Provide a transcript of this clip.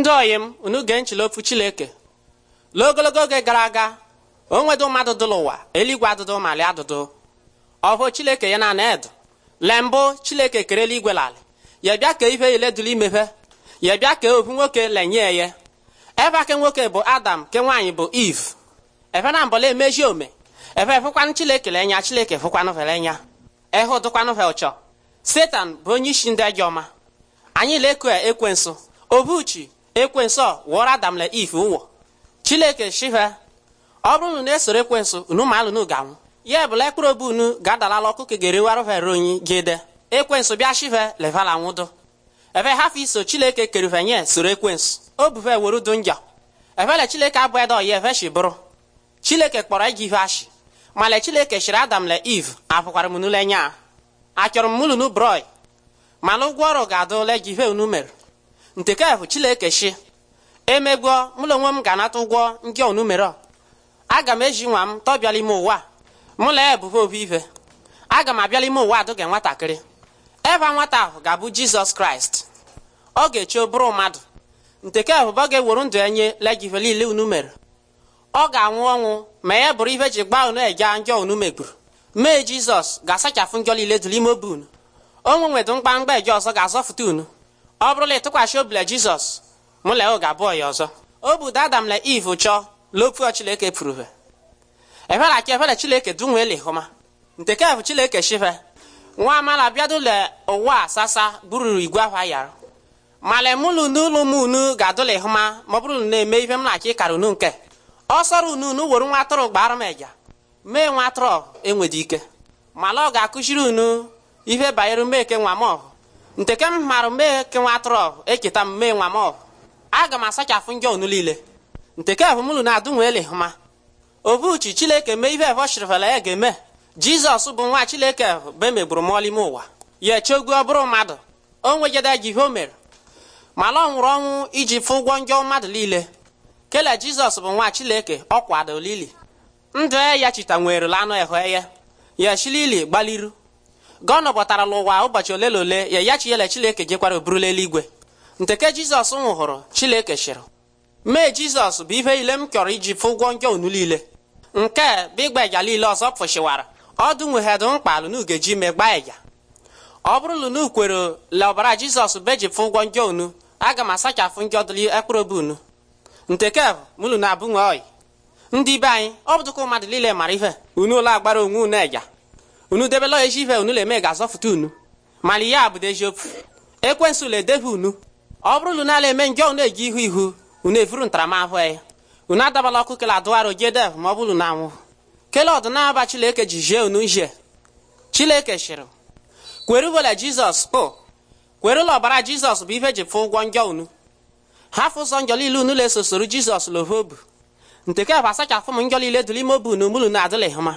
ndị oyi m unu gee nchile ofu chileke lụọ ogologo oge gara aga onwedo mmadụ dụlụ ụwa eluigwe adụdụ malị adụdụ ọhụ chileke ya na na edu le mbụ chileke kere eluigwe lalị ya bịa ka ife ile dụrụ imefe ya bịa ka ofu nwoke lenye ya ebe ake nwoke bụ adam ke nwaanyị bụ iv efe na mbọla emeji ome efe fụkwanụ chileke lenya chileke fụkwanụ nya ehe dụkwanụ fe ụchọ setan bụ onye isi ndị ajọ ọma anyị ekwe nso obuchi ekwensu wụọrọ adam na if ụwọ chineke shihe ọ bụrụ unu na-esoro ekwensu unu ma alụnụ ga-anwụ ya ebụla ekpụrụ obi unu ga-adalala ọkụ ka geriwarụvere onyi gide ekwensu bịa shihe levala nwụdụ ebe hafụ iso chineke kerivanye soro ekwensu o buve were udu njọ evele chineke abụghị da oyi eveshi bụrụ chineke kpọrọ iji ihe ashị male chineke shiri adam le iv apụkwara m n'ụlọ achọrọ m mụlụnụ broi mana ụgwọ ọrụ ga-adụ ole gi ihe unu mere nke ka bụ chilekechi emegwo mụla onwe m ga-anata ụgwọ ndị onumere aga m eji nwa m tọbịala ime ụwa mụla ebube obi ife aga m abịala ime ụwa adụga nwatakịrị ebe nwata ahụ ga-abụ jizọs kraịst ọ ga echi bụrụ mmadụ nteke ebube ọ ga-ewuru ndụ enye nye legive niile unu mere ọ ga-anwụ ọnwụ ma ya bụrụ ihe ji gbaa unu e ndị njọ megburu mee jizọs ga-asachapụ njọ niile dụrụ ime obi unu onwe nwedụ mkpamkpa eji ọzọ ga-azọfụta unu ọ bụrụla ịtụkwasị obi la jizọs mụ la oge abụọ ya ọzọ o budo adam na iv chọọ lopuo chileke pụrụve efere aka efere chileke dunwele hụma nke chileke shive nwa amala bịadụle ụwa sasa bụrụ igwe ahụ ayarụ mala mụlụ n'ụlọ m unu ga-adụla ịhụma ma ọ bụrụ na-eme ife m na-achọ ịkara unu nke ọ unu unu were nwa atụrụ gbara m eja mee nwa atụrụ enwedị ike mala ọ ga-akụziri unu ihe banyere mmeke nwa m ọhụ nke ke m marụ mee ke nwa atụrụ eketa m mee nwa m aga m asachafụ njọ ọnụ niile nke ke na-adụ nwele hụma obuchi chileke mee ihe evọchirivela ya ga-eme jizọs bụ nwa chileke be e megburu ime ụwa ya echegwu ọ bụrụ mmadụ o nwejede ji ihe o mere mana ọ nwụrụ ọnwụ iji fụ ụgwọ njọ mmadụ niile kele jizọs bụ nwa chileke ọ kwado lili ndụ e ya chita nwerela anụ ehụ eye ya gbaliru gọnọ bọtara n'ụwa ụbọchị ole na ole ya ya chiyele chileke jekwara oburula eluigwe nteke jizọs nwụhụrụ chileke chịrị mee jizọs bụ ihe ile m chọrọ iji fụ ụgwọ njọ unu niile nke bụ ịgba ịga niile ọzọ pụshiwara ọdụ nweghedu mkpalụ n'ugeji gbaa ịga ọ bụrụ lunu kwere le ọbara jizọs beji fụ ụgwọ njọ unu aga m asachafụ njọ dịli ekpụrụbe unu nteke mụlụ na abụnwe oyi ndị be anyị ọ bụdụkwa mmadụ niile mara ihe unu ụlọ agbara onwe unu ịga unu debela ya ife unu le eme ga-azọfụta unu mana ihe a eziokwu ekwensu le edebe unu ọ bụrụ unu na-ala eme njọ unu eji ihu ihu unu efuru ntaramahụhụ ya unu adabala ọkụ kele adụgharị jedev ma ọ bụrụ na anwụ kele ọdịnaba chileke ji jie unu nje chileke shịrị kwere ugbela jizọs kpo kwere ọbara jizọs bụ ife ji fụ ụgwọ njọ unu hafụ ụzọ njọ niile unu lesosoro jizọs lovobu nteke bụ asachafụ m njọ niile dụl ime obu unu mulu na adịlịghị mma